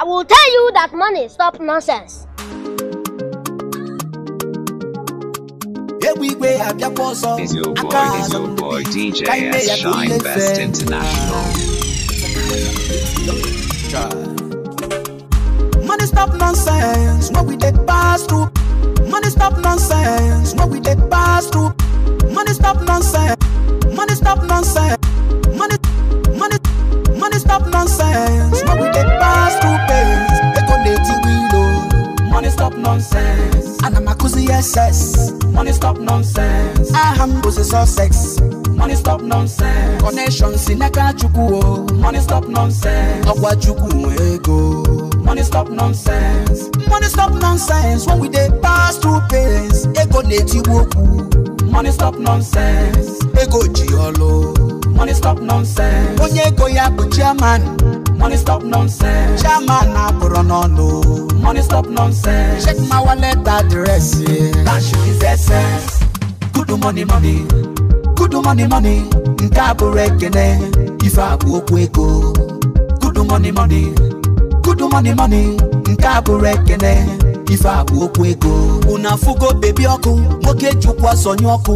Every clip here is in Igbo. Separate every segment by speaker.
Speaker 1: I will tell you that money stop nonsense.
Speaker 2: Is your boy, is your boy DJ Shine Best International. Money stop nonsense, no we take pass through. Money stop nonsense, no we take pass through. Money stop nonsense, money stop nonsense. stop nonsense. Now we dey pass through pains. Ego it wilo. Money stop nonsense. Anamakuzi SS. Money stop nonsense. I Ahambuzi Sussex. Money stop nonsense. Connection Sineka Chukwu. Oh. Money stop nonsense. Ọ̀pọ̀ Chukwu ego. Money stop nonsense. Money stop nonsense. When we dey pass through pains. Ego neti woku. Money stop nonsense. Ego ji ọlọ́ọ̀ money stop nonsense. onye ego ya bụ chairman money stop nonsense. chairman abụrụ n'ọnụ money stop nonsense. check my wallet address. cash is essence. good money money good money money nke a bụrụ ekene ife abụ okwu ego good money money good money money nke a bụrụ ekene ife abụ okwu ego unu afụgo bebi ọkụ nwoke chukwu asọnye ọkụ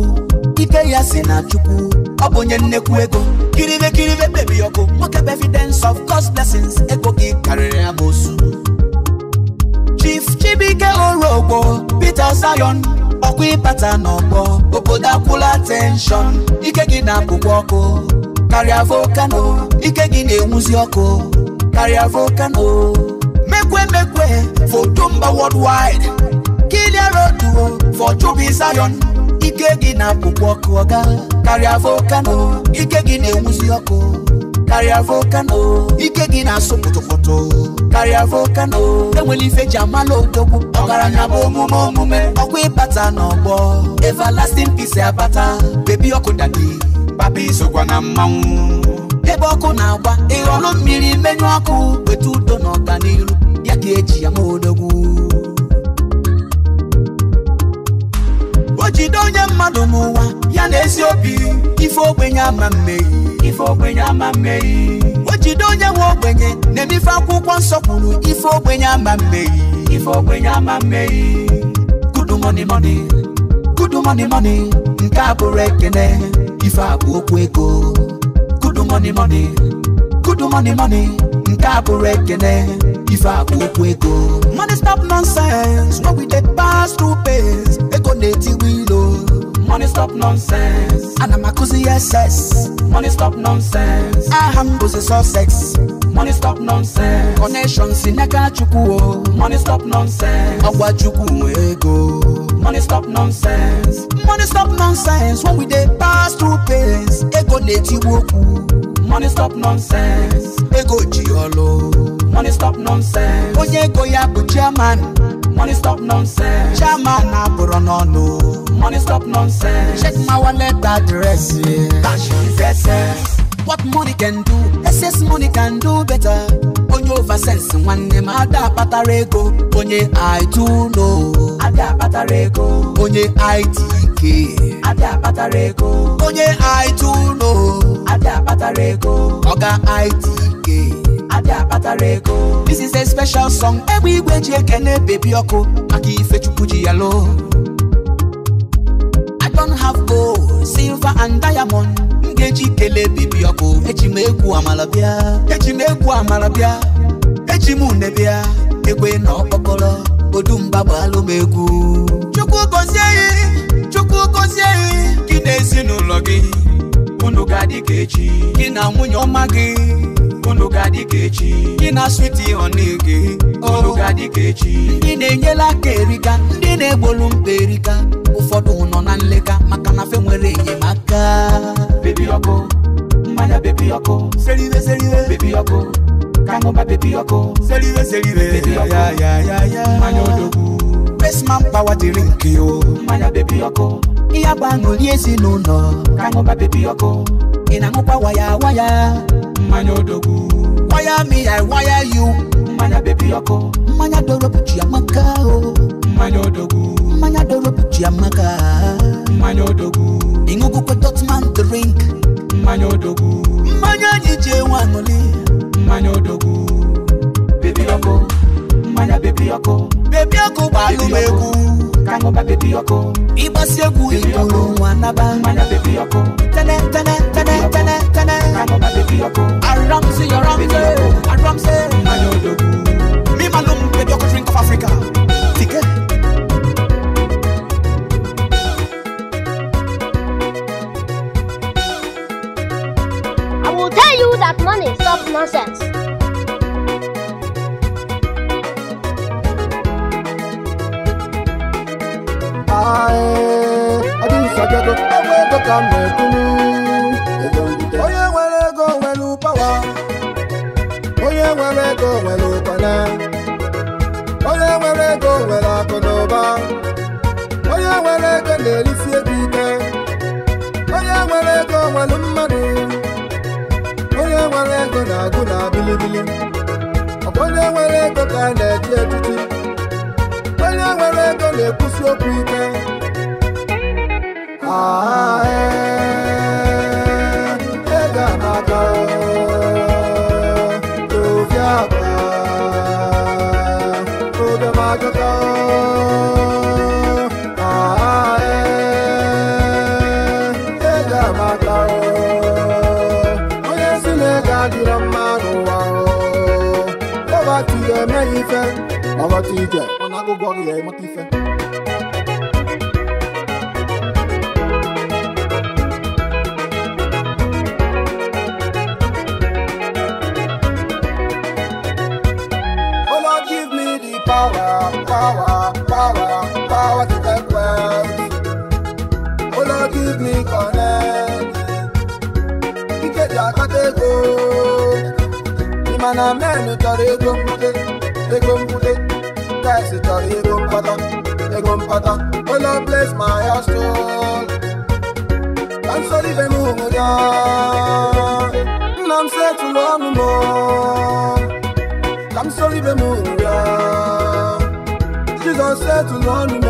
Speaker 2: ike ya si na chukwu ọ bụ onye nnekwu ego kiribe kiribe mmebi ọkụ nwoke bụ evidence of God's blessings ego gị karịrị amosu Chief Chibike Orogbo Peter Zion ọkwa ịbata n'ọgbọ obodo akwụla tenshọn ike gị na-apụkwa ọkụ karịa volkano ike gị na-enwuzi ọkụ karịa volkano mekwe mekwe foto wọd worldwide kilia road for Chubby Zion ike gị na-apụkwa ọkụ ọga karịa volkano ike gị na-enwuzi ọkụ karịa volkano ike gị na-asụ pụtụpụtụ karịa volkano enwere ife ji amala odogwu na bụ omume omume ọkwa ịbata n'ọgbọ everlasting peace abata bebi ọkụ dadi papa isokwa na mmanwụ ebe ọkụ na-agba ịghọlụ mmiri menyụ ọkụ wetu udo na ọganiru ama mmeyi ife ogbenye ama mmeyi o jide onye nwe ogbenye na-emife akwụkwọ nsọ kwuru ife ogbenye ama mmeyi ife ogbenye ama mmeyi kudu money moni kudu money moni nke a bụrụ ekene ife a bụ okwu ego kudu money money, kudu money money, nke a bụrụ ekene ife a bụ okwu ego money stop nonsense when we dey pass through pains ego na-etiwe ilo oh. Money stop nonsense. and I'm a makuzi SS. Money stop nonsense. Aham buzi so sex. Money stop nonsense. Connection sinaka chukuo. Money stop nonsense. Agwa chuku ego. Money stop nonsense. Money stop nonsense. When we dey pass through pains, ego neti woku. Money stop nonsense. Ego jiolo. Money stop nonsense. Onye ego ya bụ chairman. Money stop nonsense. Chairman abụrụ n'ọnụ money stop nonsense. Check my wallet address, Cash is essence. What money can do, excess money can do better. Onye over sense nwanne m ada ego. Onye I do know. Ada akpatara ego. Onye ITK. Ada akpatara ego. Onye I do know. Ada akpatara ego. Oga ITK. ada akpatara ego this is a special song egbe igwe ji ekene bebi ọkụ maka ife chukwu ji ya loo don't have gold silver and diamond m ga-eji kelee bibi ọkụ eji m egwu amala bịa eji m egwu bịa eji m une egbe na ọkpọkọrọ odumba bụ m egwu chukwu gọzie gị chukwu gọzie gị gị na ezinụlọ gị unu ga-adị ka echi gị na nwunye ọma gị unu kechi, adịka echi gị na switi ọnụge oh. unu ga-adịka echi ndị na-enyela aka erika ndị na-egbolu mkpa erika ụfọdụ nọ na nleka maka na fe nwere enyemaka bebi ọkụ mmanya bebi ọkụ seriwe seriwe bebi ọkụ kaṅụba bebi ọkụ seriwe seriwe bebi ọkụ mmanya odogwu besman pawa dịrị nke o mmanya bebi ọkụ ihe agba aṅụli ezinụlọ kaṅụba bebi ọkụ ị na-aṅụkwa waya waya mmanya odogwu wire me i wire you mmanya baby ọkụ mmanya doro bụ chiamaka o mmanya odogwu mmanya doro bụ chiamaka mmanya odogwu ịṅụgwukwe dotman drink mmanya odogwu mmanya anyị ji enwe aṅụli mmanya odogwu bebi ọkụ mmanya bebi ọkụ bebi ọkụ gbalụ m egwu kaṅụba bebi ọkụ ịgbasi egwu igbo nwa naba mmanya bebi ọkụ tene tene tene tene tene kaṅụba bebi ọkụ Ramsey, you're Ramsey, and Ramsey, I
Speaker 1: will tell you that money is nonsense.
Speaker 3: I, I do such a way to come back to me. ego nwere onye nwere ego nwere akụ na ụba onye nwere ego na-erisi ego ike onye nwere ego nwere mmadụ onye nwere ego na-agụ na bilibili ọkwa onye nwere ego ka a na-eji echichi onye nwere ego na-ekwusi okwu ike DJ, when I go go here, I'm a power, power, power, power to get wealthy. Oh Lord, give me connect. Ike di esi chọrọ ego mkpata ego mkpata ụlọ bles ma ya stol ka nsọrọ ibe m hụrụ ya nna m si etụlụ ọnụ m ka m sọrọ ibe m hụrụ ya jizọs si etụlụ ọnụ m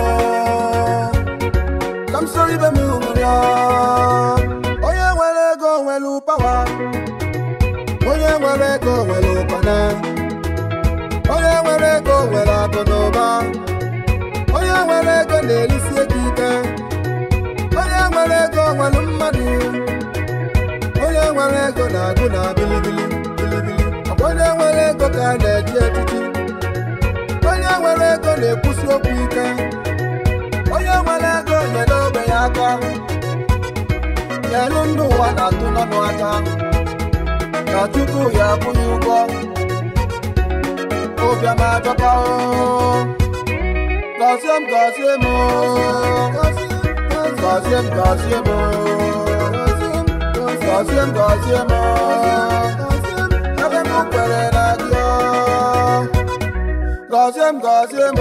Speaker 3: ka m sọrọ ibe m hụrụ ya onye nwere ego nwere ụpawa onye nwere ego nwere ụkpana nwere ego nwere akụ na ụba onye nwere ego na-erisi ego ike onye nwere ego nwere mmadụ onye nwere ego na-agụ na bilibili bilibili onye nwere ego ka na-eji etiti onye nwere ego na-ekwusi okwu ike onye nwere ego nyere ogbe ya aka nyelu ndụ ụwa na-atụ n'ọnụ aka na tupu ya akwụghị ụgwọ obiama dọka o gọzie m gọzie m gọzie m gọzie m gọzie m gọzie m ebe m kwere na gị o, m gọzie o. gọzie m gọzie m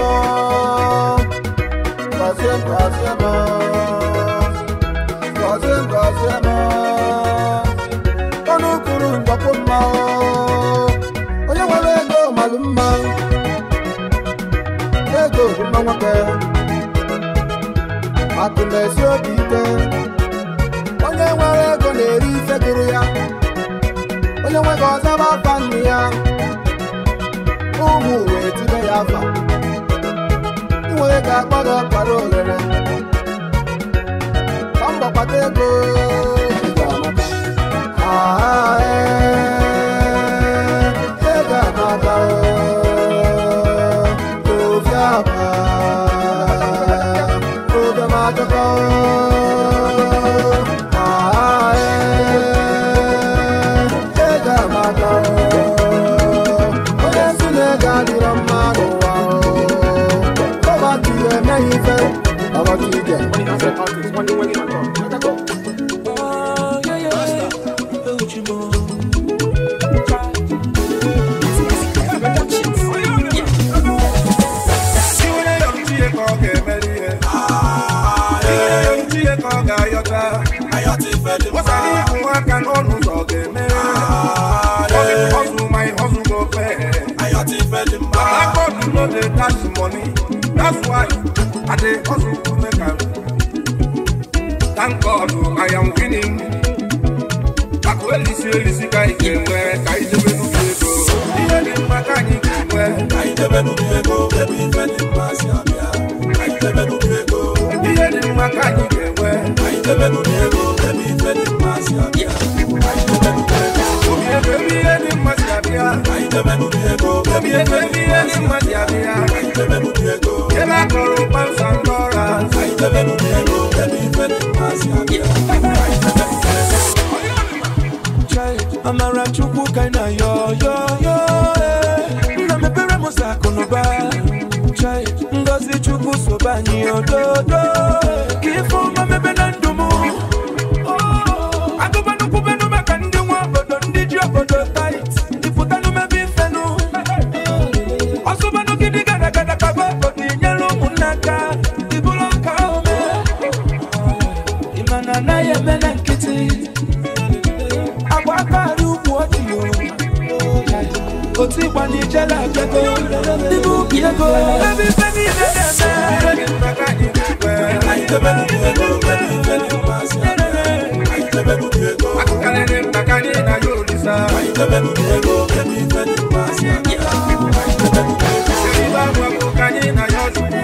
Speaker 3: gọzie m gọzie m ọnụ kwuru mgbakwo ohu nwa nwoke atụlesi obi ike onye nwere ego na-eri ife gụrụ ya onye nwere ọzaba afa nnu ya ụmụ wee i baba.
Speaker 1: pass money. That's why I dey hustle to make am. Thank God I am winning. Akwelisi elisi ka ike nwee ka idebe nnukwu ego. Ihe dị mma ka anyị ga-enwe. Ka idebe nnukwu ego ebe ife dị mma si abịa. Ka idebe nnukwu ego. Ihe dị mma ka ego. Ebe akụrụ kpamsa yo yo yo Nna mepere m ụzọ akụ na ụba Ngozi Chukwu sobe ni ododo Ka ife DJ you I the baby you you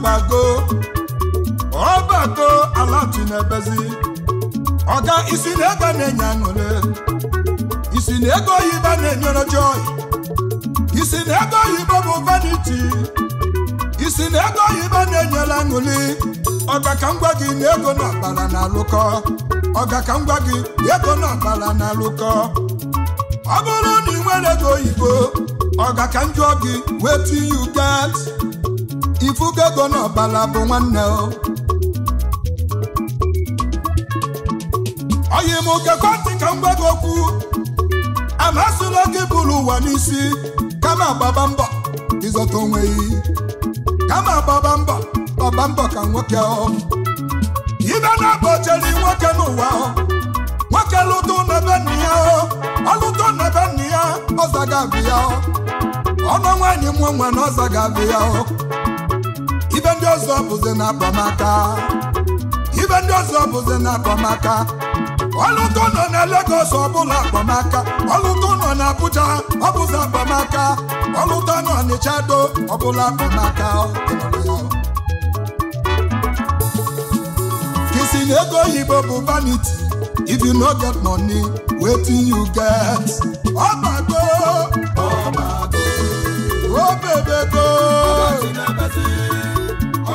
Speaker 1: gbago ọbago ala tinebezi ọga isi na ego na-enye aṅụle isi na ego oyibo na-enyere joy isi na ego oyibo bụ vaniti. isi na ego oyibo na-enyere aṅụli ọga ka m gwa gị na ego na akpara na alụkọ ọga ka m gwa gị ego na akpara na alụkọ ọ bụrụ na ị nwere ego oyibo ọga ka m jụọ gị wetin you get ifugo ego n'ọbala bụ nwanne o oyi m kekwantị ka m gwa gị okwu amasịla gị bụrụ ụwa n'isi kama gbaba mbọ ịzọta onwe gị kama gbaba mbọ ọba mbọ ka nwoke ọ ibe na agba chere nwoke n'ụwa nwoke lụtụ n'ebe nna ya ọlụtụ n'ebe nna ya ọzaga abịa ọnụ nwaanyị mụ nwe na ọzaga abịa ife ndị ọzọ bụzi na akpamaka ibe ndị ọzọ bụzi na akpamaka ọlụtụ nọ na Lagos ọbụla akpamaka ọlụtụ nọ na Abuja ọbụzi akpamaka ọlụtụ nọ n'Ịchado ọbụla akpamaka na ego yibo bụ vanity if you no get money wetin you get ọgbago ọgbago o oh, bebe go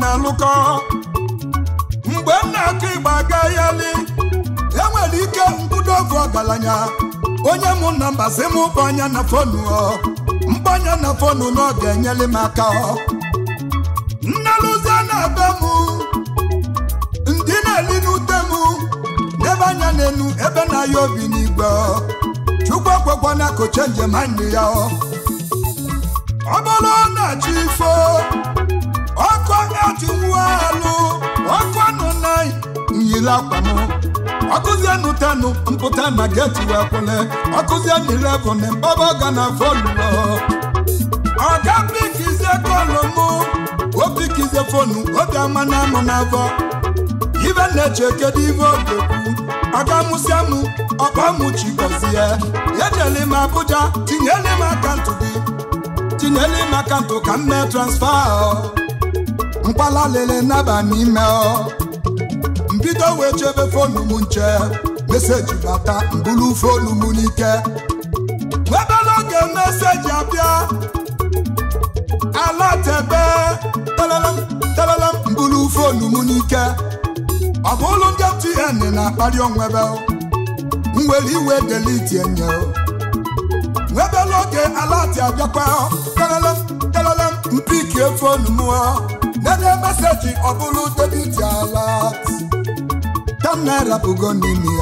Speaker 1: na-alụkọ mgbe m na-akụ ịgba agayali enwere ike mbudo oge ọgaranya onye mụ na mbazi m mbanya na fonu mkpanya na fonu na ọ ga-enyere m aka nnelụzi na-abịa m ndị na-eli n'ute m n'ebe anya n'enu ebe na-aya obi n'igwe chukwu na koche njem anyị ya n'ili akwa m ọkụzienụ tenụ mpụta na geti wee kwụle ọkụzienụ na mbaba ọga na fọlụọ ọga pikizie kọlụ m opikizie fonu obi ama na amụ na avọ ibe na-eche kedu ogekwu ọga mụ ọkpa gọzie m Abuja tinyele m tinyele m ka m mee transfa bido wee chebe fonu m nche meseji bata mbulu fonu m n'ike nwebe n'oge meseji abịa ala telele talalam talalam mbulu fonu m n'ike ọ bụ ụlọ ndị mtn na-akpali onwebe nwere iwe deliti enye nwebe n'oge alati abịakwa talalam talalam mpiki fonu m enye meseji ọ bụrụ debiti alat million naira bụgo n'ime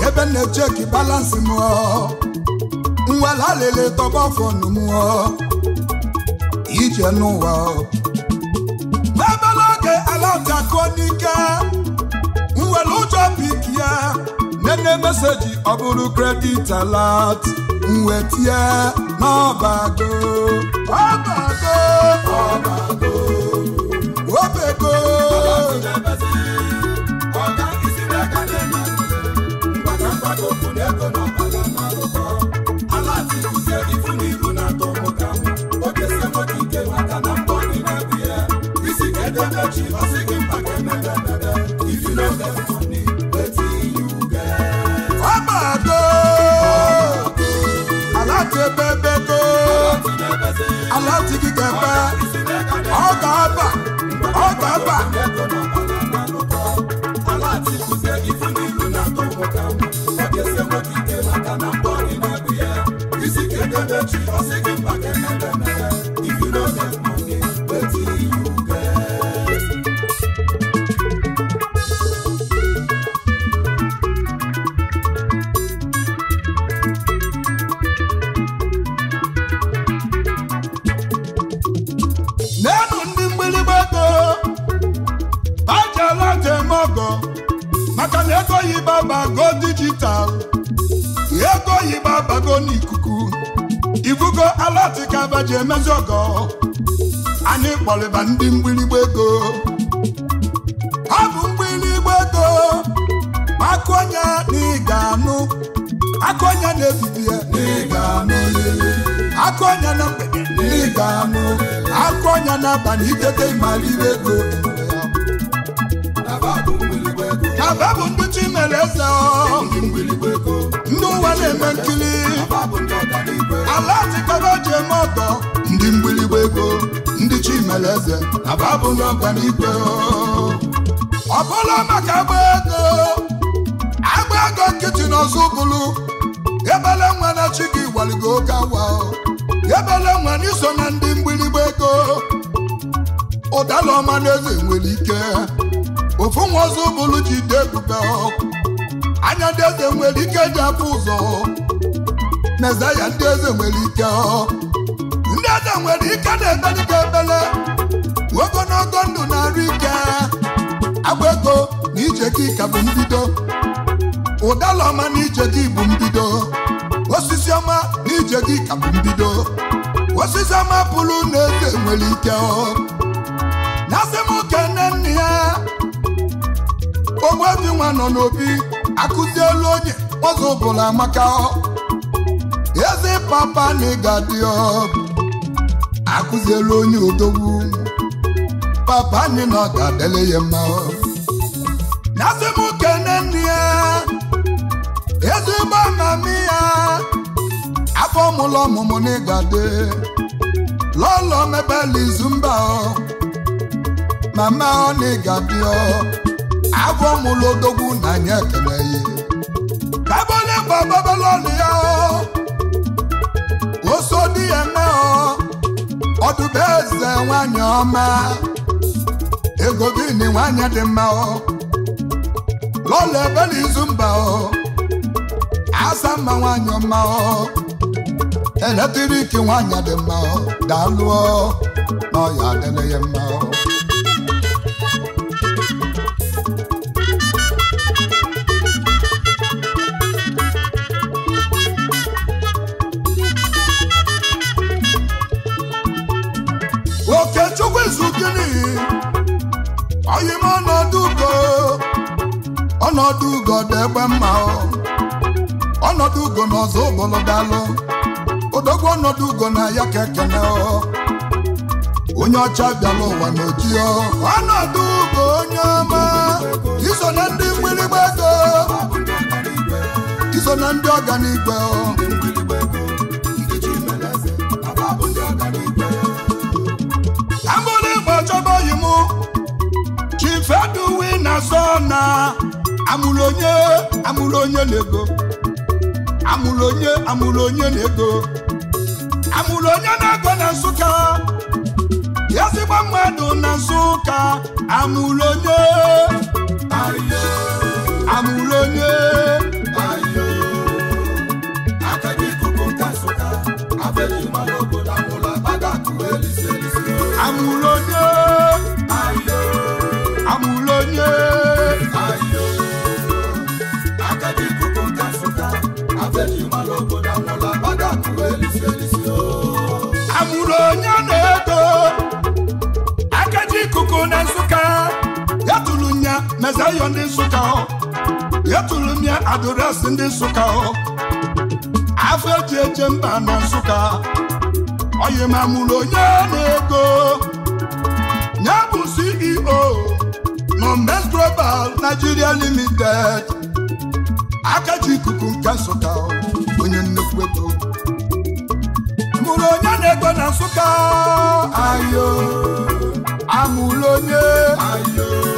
Speaker 1: ya ebe na-echeki balansị m nwela lele tọba fọnụ m ije n'ụwa ebela oge alafia kụọ n'ike nwere ụjọ pik ya nene meseji ọ bụrụ kredit alat nwetie n'ọbago ọbago ọbago obego Yeah. n'abalị itete ịmalire ego aba bụ ndị mere eze ndị ụwa na-eme nkiri ala atịkọba ji eme ọtọ ndị mgbirigba ego ndị chi mere eze aba bụ ndị ọganigwe ọ Ọbụla maka agba ego agba ego nkịtị n'ọzọ bụrụ ebele nwa na chi gị waligo oke awa ebele nwa n'iso na ndị ụdala ọma na eze nwere ike ofu nwa ọzọ bụrụ jide ebube anya ndị eze nwere ike ji afọ ụzọ ya ndị eze nwere ike ndị eze nwere ike na-ebe dịka ebele Ogo ogologo ndụ na-arụ ike agba ego na ijeke ka bụ mbido ụdala ọma na ijeke bụ mbido osisi ọma na ijeke ka bụ mbido osisi ọma pụrụ na eze nwere ike Ogbuefi nwa nọ n'obi akụzielu onye ọzọ bụla maka eze papa na ịga dị akụzielu onye odogwu papa anyị na ọ ga-adịle ya mma na-asị m kene nri ya ezigbo amamiya afọ mụlọ ọmụmụ na ịgade lọlọ mebela izu mba mama ọ na ịgadị abụọ mụlodogwu na anyị ekele ya ebe onye bụ babalọnụ ya oso di ya eme ọdụbe eze nwanyị ọma ego bini nwanyị dị mma lọla ebe n'izu mba asa mma nwanyị ọma eletriki nwanyị dị mma daalụ na ọya adịrị ya mma ọnọdụ ugo dị egbe mma ọnọdụ ugo na ọzọ ụbọlọdalụ odogwu ọnọdụ ugo na ya ka ekene onye ọcha bịala ụwa na oji ọnọdụ ugo onye ọma iso na ndị mgbịrịgba ego iso na ndị ọganigwe abụrụ ịgba chọba oyi m chifeduwi na sona amụrụ onye amụrụ onye na-ego amụrụ onye amụrụ onye na-ego amụrụ onye na-ego na Nsụka ezigbo mmadụ na Nsụka amụrụ onye Mezayo ndị nsukka ọ eturu m ya adụresị ndị nsukka ọ afọ eji eche mba na nsukka oyi ma mụrụ onye na-ego nye bụ CEO Nomes Global Nigeria Limited aka ikuku nke Nsụka onye nnukwu ego mụrụ onye na-ego na Nsụka ayo amụrụ onye ayo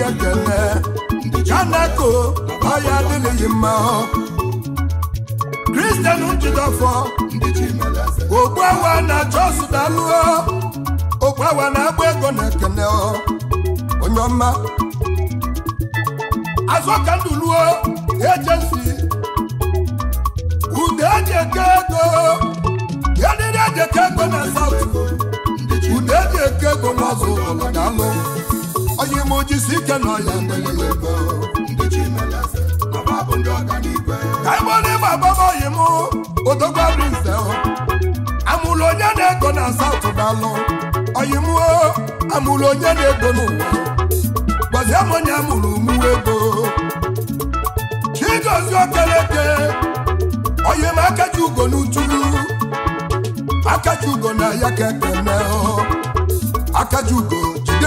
Speaker 1: obi ekele kanako ọya adịghị mma kristian njidọfọ ogbu awa na chọsụ dalụọ ogbu awa na-agba ego na ekele onye ọma azọkanduluo ejensi ude eji eke ego yadịrị eji eke ego na South ude eji eke ego na ọzọ ụlọ na alụ onye ime ojisi ike nọ ya ka ebe ọ na-eme agbamoyi m odogbarụ nze amụrụ onye na-ego na satụ dalụ oyim amụrụ onye na-ego n'ụwa gbazie m onye amụrụ mụwa ego chigozi okeleke oyim akaji ugo n'utulu akaji ugo na ya ka ekene akaji ugo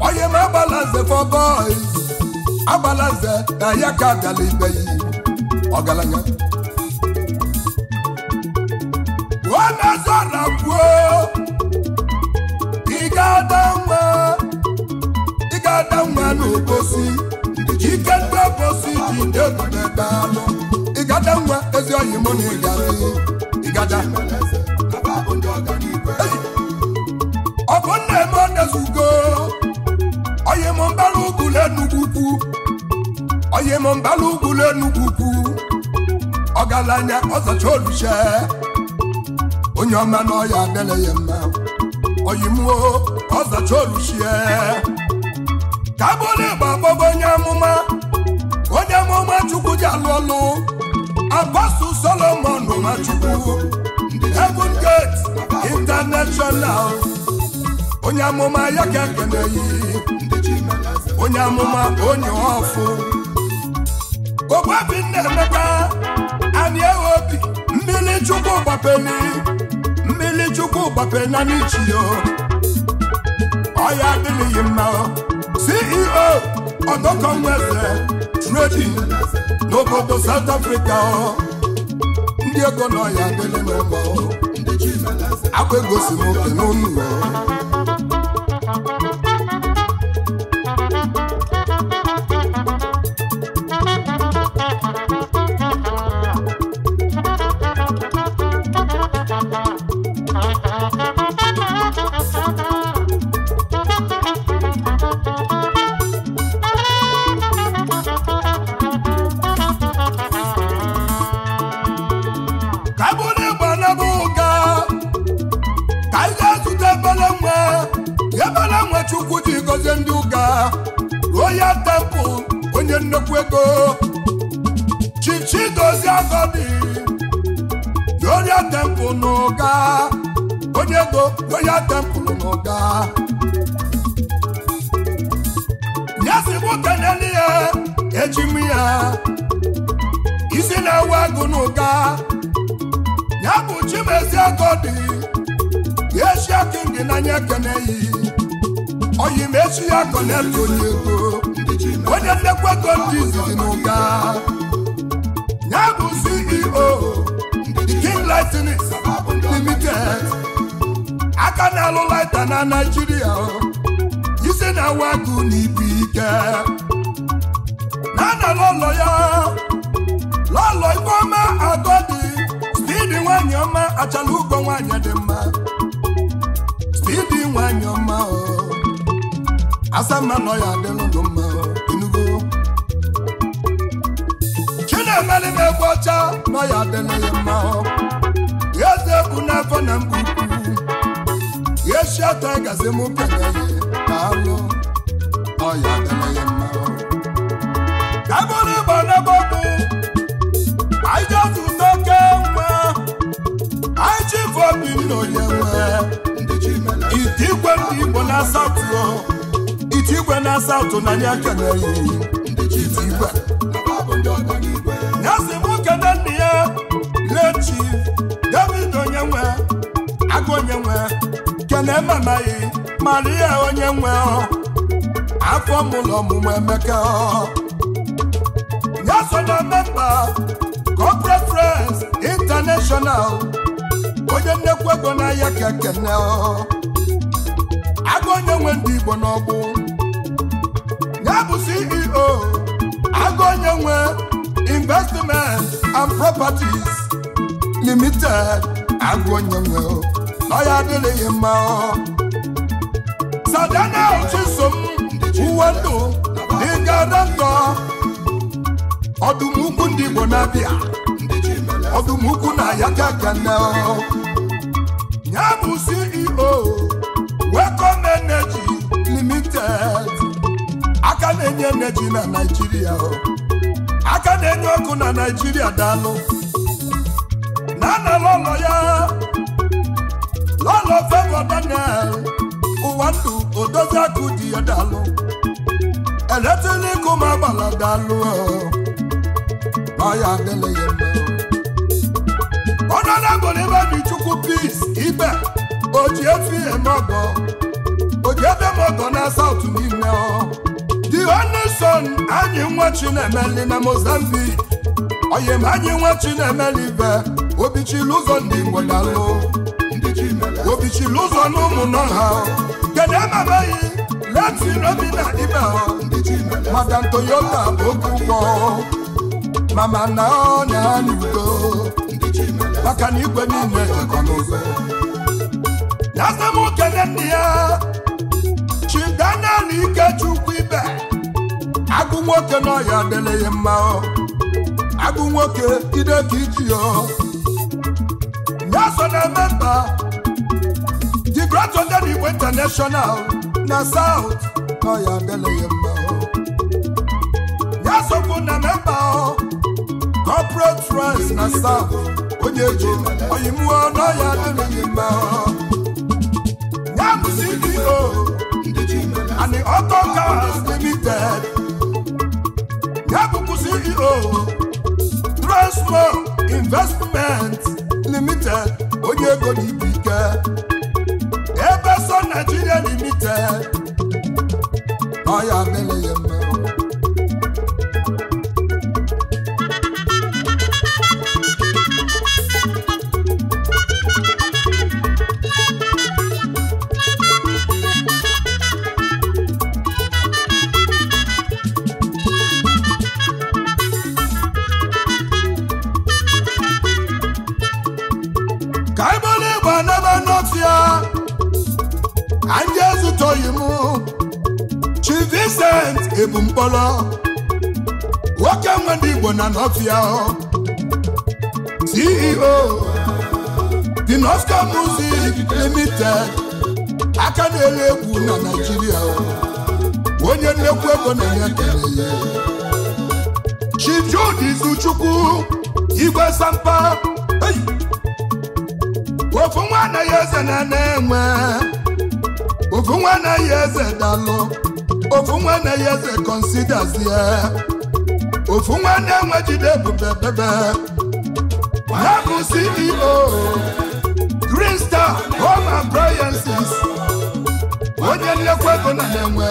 Speaker 1: onye ma agbalaze for boys agbalaze na ya ka bịala ibe yi ọgaranya ọ na kwuo ị ga-ada nwa ị ga-ada ike ndị obosi ji ndị otu ebe ị nwa ezi oyi mụ na ị ga ị ga-ada tie m mbala ugwulu enugwu ukwu ọgaranya ọzacha oluche onye ọma na ọya adịla ya mma oyimuo ọzacha oluchie ka bụrụ ịgba agbọgo onye amụma onye amụma chukwu ji alụ ọlụ apasu solomon machukwu heaven gate international onye amụma ya ka ekeneghị onye amụma onye ọfụ ogbuobi nnaemeka anyị ewe obi mmiri chukwu gbapeli mmiri chukwu gbapena n'ichi ọya adịghị mma ceo ọdọkọnweze trading n'obodo South Africa ndị ego na ọya adịghị mma akwa egosi m oke n'ụlọ nnukwu ego chichidozie agọdi yoria tempụl n'ụga onye ego yoria tempụl n'oga ya si bụ keneli ya ya isi na-ewe agụ n'ụga ya bụ chimezi na ya eshia kingi na nye ekeneyi oyi mechi ya koneli onye ego onye ndekwa ndị izizi na ya bụ CEO King Lightnings Limited aka na-alụ laita na Naịjirịa isi na-awa na ibu ike na anọ lọlọ ya lọlọ Ifeọma dị stidi nwanyị ọma achala ugo nwanyị dị mma stidi nwanyị ọma o asa na nọ ya ndụ mma enugo chinemeli ma egwu ọcha nọ ya adịlụ ya mma eze ekwu n'afọ na mgbe ukwu esi ọtọ gazi m peneye na alụ ya adịlụ mma ka bụrụ igbo n'ebe ọkụ anyị ji ọtụ ụtọ nwa anyị ji ife obi onye nwe igbo na-asatụ igwe na saụtụ na ya keneghị ya si m kene nna ya lechi david onye nwe agụ onye nwe kene mamaghị mara ya onye nwe afọ mụlọ ọmụmụ emeka ya so na memba corporate friends onye nnekwu ego n'ahịa ka kene agụ onye nwe ndị igbo n'ọgbụ nye bụ CEO agụ onye nwe investment and properties limited agụ onye nwe ya adịghị mma
Speaker 2: sadana m
Speaker 1: uwe ndụ dịga dọktọ ọdụmukwu ndị Igbo na-abịa ọdụmukwu na yakagana ya bụ CEO Welcome Energy Limited na-enye energy na Naịjirịa aka na-enye ọkụ na Naịjirịa daalụ na ana lọlọ ya lọlọ Favour Daniel Ụwandu Odoziakụ di ya daalụ eletrik ụmụ agbala daalụ ọya adịla ya Honorable Ibedichukwu Peace Ibe oji efi eme o ji ebe m ọgọ ọ dioneson anyị nwa chinemeli na mozambique oyim anyị nwa chinemeli be obichili ụzọ ndị igbo dalụ obichili ụzọ na ụmụnọ ha kedu emebeghị leti robi na ibe madam toyota okwụkwọ mama na ọnya n'udo maka na igwe niile ya se na asamokele ndị ya chidanali ikechu ibe agụ nwoke n'ọya adịlịghị mma agụ nwoke ide ka iji ọ so na eme memba the great Igbo international na south n'ọya adịlịghị mma ya sokwu na memba corporate rice na south onye ji oyimụọ n'ọya adịlịghị mma ya dị CEO and the Auto Cars Limited. Ya bụkwa CEO Investment Limited onye ego n'ibu ike. Ebeson Nigeria Limited. Ọ ya ya ebu mkpọrọ nwoke nwe ndị Igbo na nọfịa CEO dị Nostar Music Limited aka na-ele egwu na Naịjirịa onye nnekwu ego na-enye ekele ya Chief Igwe Sampa ofu nwa anaghị eze na na-enwe ofu nwa anaghị eze dalụ ofu nwanne na eze kọnsidazie ofu nwanne na-enwe jide ebube bebe ha bụ CEO Green Star Home Appliances onye nlekwa ego na na-enwe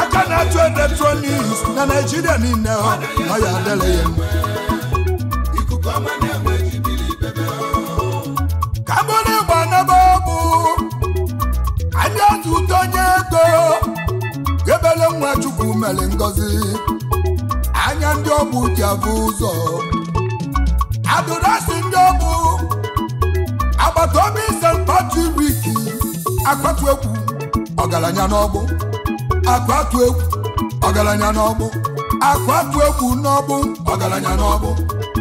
Speaker 1: aka na-atụ eletrọniks na Naịjirịa niile ọ ya adịghị mere ngọzi anya ndị ọbụ ji abụ ụzọ adụrasị ndị ọbụ agbata obi ise mkpatụriki akpatụ egwu ọgaranya n'ọgbụ akpatụ egwu ọgaranya n'ọgbụ akpatụ egwu n'ọgbụ ọgaranya n'ọgbụ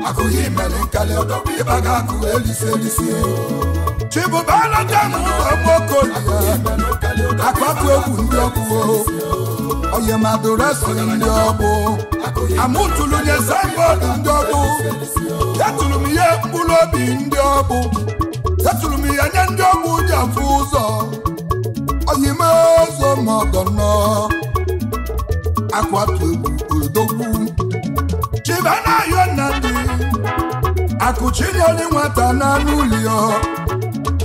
Speaker 1: akụghị mere nkali ọdọbụ ịba ga-akụ elisi elisi chibụbara dem ụzọ mokoli akwatu egwu ndị ọgbụ oyemadureso ndị ọbụ amụtụlụ nye signboard ndị ọbụ etụrụ ihe mkpụrụ obi ndị ọbụ etụrụ m ihe nye ndị ọbụ ji afụ ụzọ oyime ụzọ ma ọgọnọ akwatu egwu odogwu chiba na akụchi nwata n'anụ ụlọ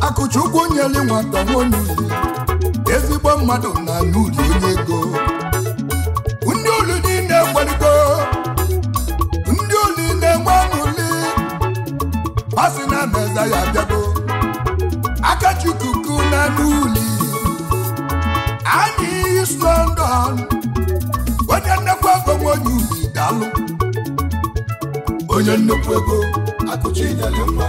Speaker 1: akụchi ụkwụ nyeli nwata nwonye ezigbo mmadụ na n'ụlọ onye ego ndị oli na-enwe mụli masị na meza ya bịago na n'uli anyị so ndọn onye nnekwu onye nnukwu ego onye nnukwu ego akụchi nyere mma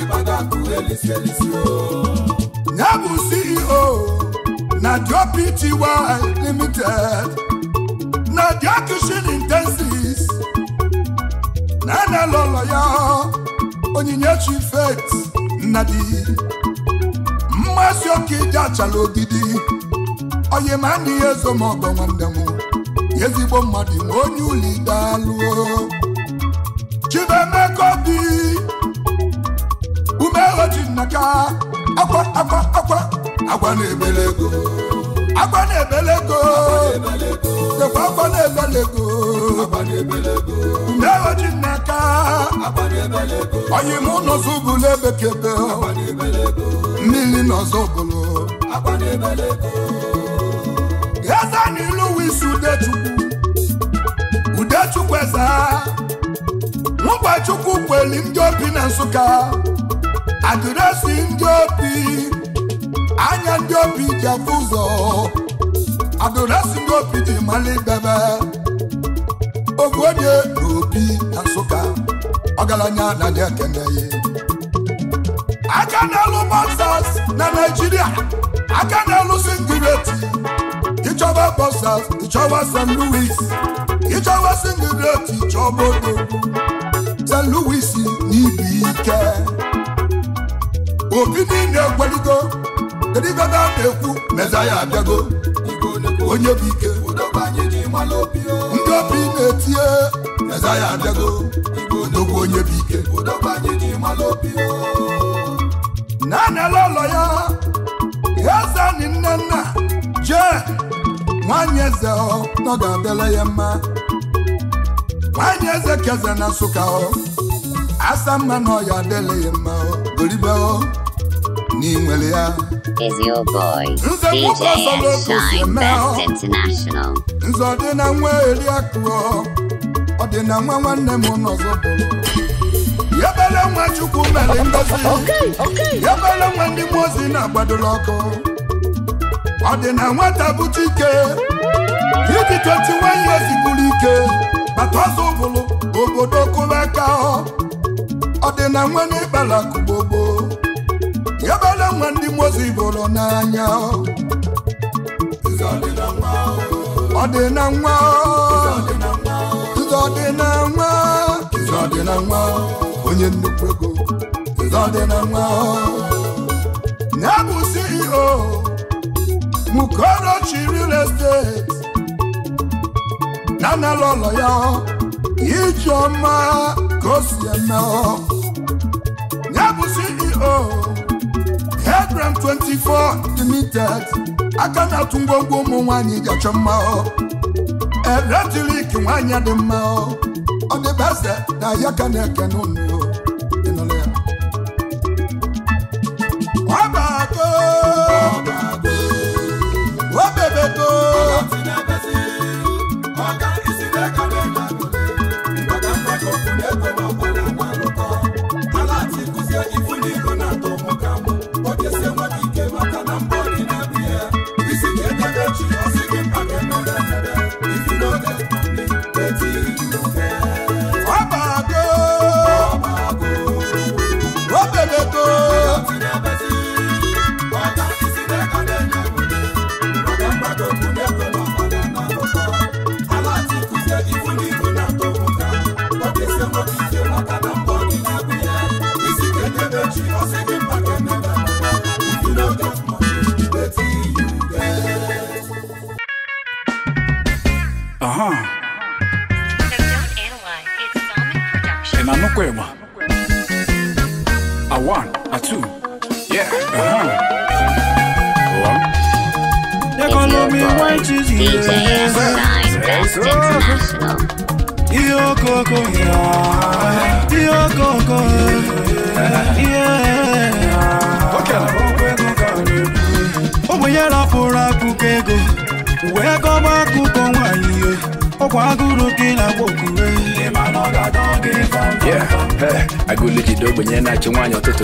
Speaker 1: ibada akụ elisi elisi ya bụ CEO na Dio Pty Limited na Dio Kitchen Intensives na analụlọ ya Onyinyechi Faith Nnadi mmasị oke ije achala ogidi onye ma na ihe ezo ma ọgọ nwanne m ezigbo mmadụ ma onye ụlọ idalụo agba na-ebele ego agba na-ebele ego dekwa agba na-ebele ego mmeoji n'aka onye mụ n'ọzọ ụbụlụ ebekebe mmiri n'ọzọ ụbụlụ eze na ilu wisi udechukwu udechukwu eze nwụkwa chukwu kweli ndị obi na nsụka adịresị ndị obi anya ndị obi ji afụ ụzọ adụlasi ndị obi ji mara ibebe onye na obi na nsụka ọgaranya anaghị ekene ya aka na-alụ bọsas na naijiria aka na-alụ singireti ịchọba bọsas ịchọba st louis ịchọba singireti chọba odo st louis n'ibi ike obi niile egweligo kedu ife ebe a na-ekwu meza ya abịago onye bụ ike ndị obi na-etinye meza ya abịago odogwu onye bụ ike na-anala ụlọ ya eze nne nna jee nwanyị eze ọ ga-abịala ya mma nwanyị eze keze na nsụka ọ asa mma na ọ ya adịla ya mma goribe ọ n'inwere ya
Speaker 2: is your boy, DJ Shine Best International.
Speaker 1: na nwa eri akụọ, ọdịna nwa nwanne m n'ọzọ bụrụ. Yabele nwa Chukwu mere ya Yabele nwa ndị mmụọ ozi na-agbadola ọkụ. Ọ Ọdịna nwata bụ Chike. Dịdị 21 years buru ike. Bata ọzọ ụbụlụ, obodo kụrụ aka ọ. Ọdịna nwa n'ịkpala kụgbogbo. Yabele ama ndị mozi bụrụ n'anya ọ dị na nwa ọ dị na nwa ọ dị na nwa onye nnukwu ego ọ dị na nwa Na bụ CEO Mukorochi real estate na analụ ụlọ ya ọma ka o si eme ọ. 24 limited aka na-atụ ngwongwo ụmụ nwanyị dị achọ mma Eletrik nwaanyị dị mma ọ dị best na ya ka na-ekene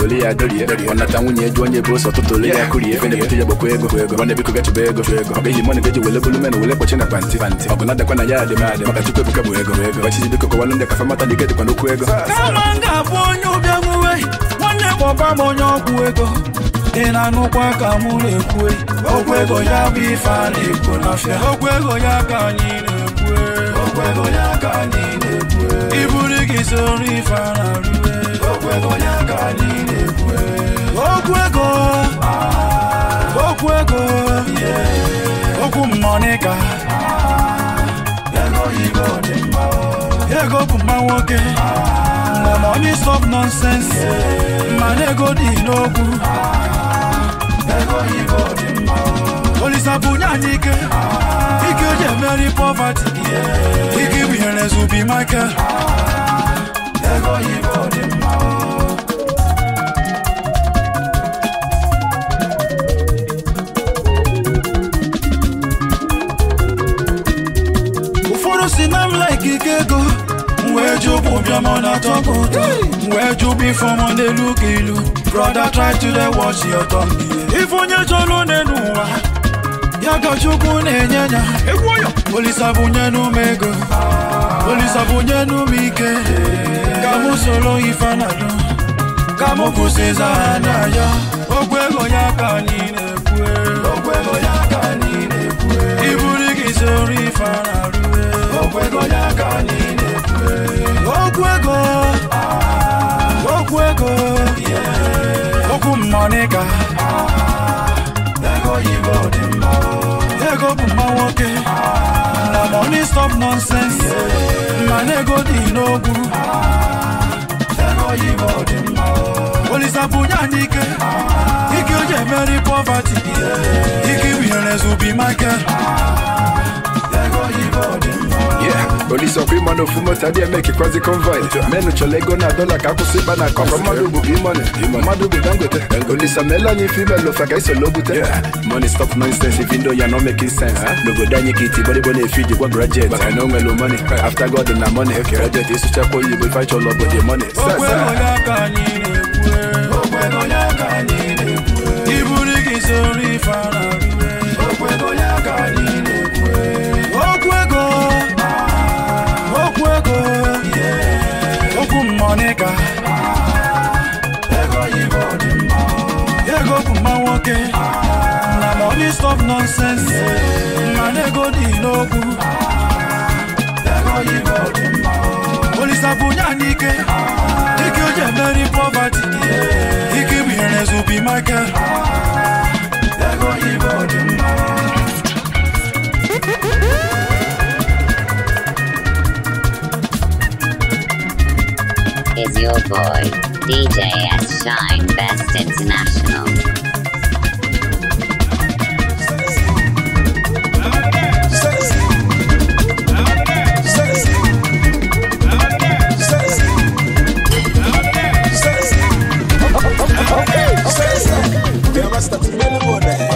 Speaker 1: toli ya dorie ọnata nwunye eju onye bụ ụsọ tụtụli ya kurie ife na-ebute ya gbakwa ego ego na biko gachụba ego ego ọ ga mọnụ ga-eji wele bulu menụ wele kpọchi na panti kpanti ọ bụ na ya adị m adị maka tupu ebuka bụ ego ego ọchịchị biko kọwalụ ndị kafa mata dike dịkwa n'okwu ego kama m ga-abụ onye ụbịa nwuwe nwanne kpọba m onye ọgwụ ego ị na-anụkwa ka mụ na-ekwu ego ya bụ ife a na-ekwu n'afịa okwu ya ka anyị na ego ya ka anyị na-ekwu gị sori fararue
Speaker 4: okwu ego ya ka anyị na-ekwu
Speaker 1: okwu ego okwu ego okwu mmonika ego bụ mma nwoke mgbe money stop nonsense mana ego dị n'okwu olisa bunye anyị ike ike eji emeri poverty ike ibinyere zubi michael ego Igbo dị mma ụfọdụ si na like ike ego wee jụ bụ bịọm na-atọ m ụtọ wee
Speaker 2: brother try to dey
Speaker 1: your thumb ife onye chọrọ n'elu ụwa ya ka Chukwu na-enye ya olisa bunye n'ume ego olisa Ah. ka mụ soro ife anado ka mụ kwụsịza ha n'anya okwu ego ya ka anyị na-ekwu okwu ego ya ka anyị na-ekwu iburu gị soro ife anarụ okwu ego ya ka anyị na-ekwu okwu ego okwu ego okwu mmọnịka
Speaker 4: ego yibo dị
Speaker 1: mma ego bụ mma nwoke na money stop nonsense mana ego dị n'ogwuru olisa bunye anyị ike ike o ji emeri poverty ike winyere zubi make polisi ọkwa ịma na ofu eme kekwazi konvoi menụ chọrọ ego na dọla ka akwụsị ịkpa na akọ mmadụ bụ bimoni mmadụ bụ dangote polisi omeela anyị ife imel ofe ka isolo bute money stop nonsense ife ndo ya no making sense n'obodo anyị ka iti gbadịgbo na-efi jikwa grajet maka na o nwere after god na money grajet ịsụchakwa oyibo ife achọrọ obodo money iburu gị soro ife ara Monica ego bụ mma nwoke na money stop nonsense mana ego dị n'okwu olisa bunye anyị ike ike o ji emeri poverty ike bụ ihe na-ezubi Michael
Speaker 2: is your boy, DJ S. Shine Best International. Okay, okay. okay.
Speaker 1: okay. okay. okay. okay. okay.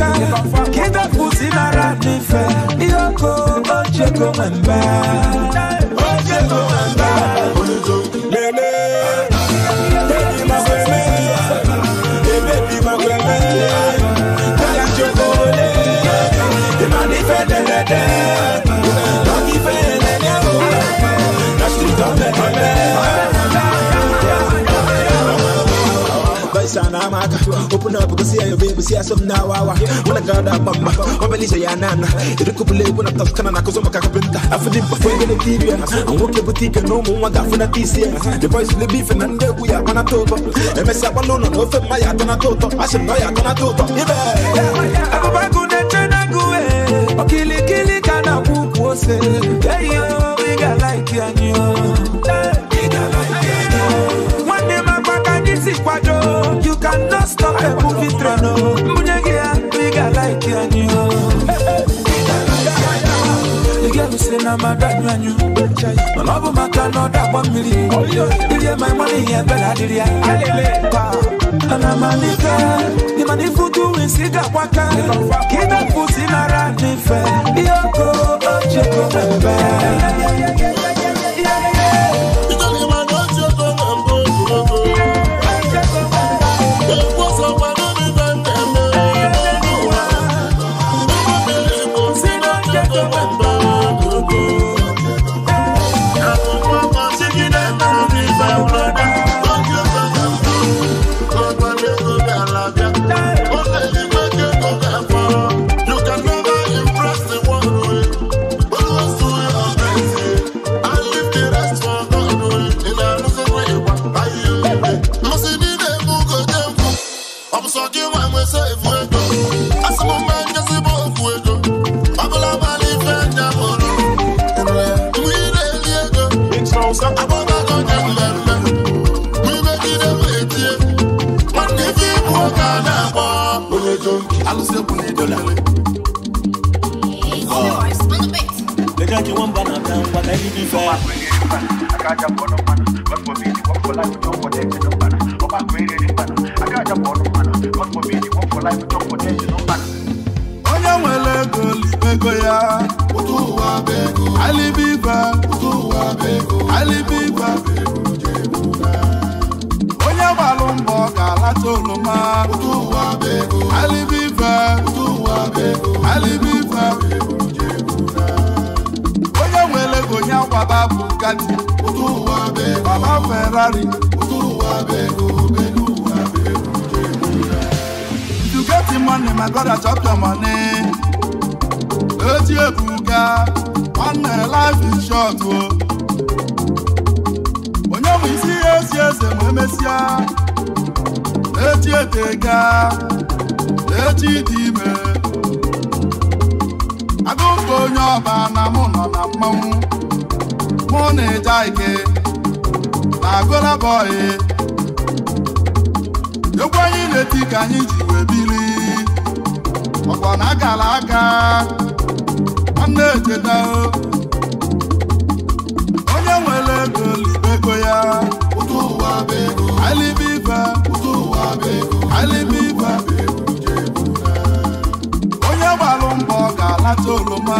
Speaker 1: aka kida pusi mara n'ife ihe oko ochie open up, go see your baby, see some now. when I got that mama, when say Yanana, it could be when I touch Canada, cause I'm I feel it before the TV, I'm walking boutique and no more, I got for the TC. The voice will be from under we are on a top. MS Abalona, no for my Atana Toto, I am buy Atana Toto. Okilikili kana kukwose Hey yo, we got like yanyo Hey, we got like yanyo Mwande makwaka nisi kwa jo don't stop the movie train, oh. Munyege, big I like you you. The girl who say my dad and you. No love my car, that one million. Give you my money, yeah, better did I'm a nigga, the money for doing cigar waka. Keep that pussy in a random fair. Yoko, oh, Jacob, and kiwamba na tamba na hivi fa akaja kuona mwana wako mimi wako life don't for that no bana oba kweli ni bana akaja kuona mwana wako mimi wako life don't for that no ya alibiba alibiba onye gbalụ mbọ ga-alata oloma alibiba alibiba yá bàbá bugatti. ojú wa bẹ́ẹ̀ ferrari. ojú wa bẹ́ẹ̀ o pẹ̀lú you get the money my brother chop your money. ojú ebuka one na life is short o. onye bụ isi esi eze ma emesịa. echi eteka echi dị ime. agụkọ onye ọba na mụ nọ na mmanwụ. mụ na ịja ike na Burna Boy egwu anyị na-eti ka anyị ji wee bili ọkwa na agala aka nwanne echeta onye nwere ego libego ya alibe ibe alibe ibe onye gbalụ mbọ ga alata oroma